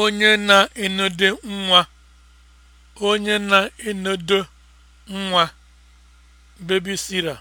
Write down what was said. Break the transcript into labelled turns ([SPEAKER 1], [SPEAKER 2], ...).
[SPEAKER 1] onye na-enodo nwa onye na-enodo nwa babysitter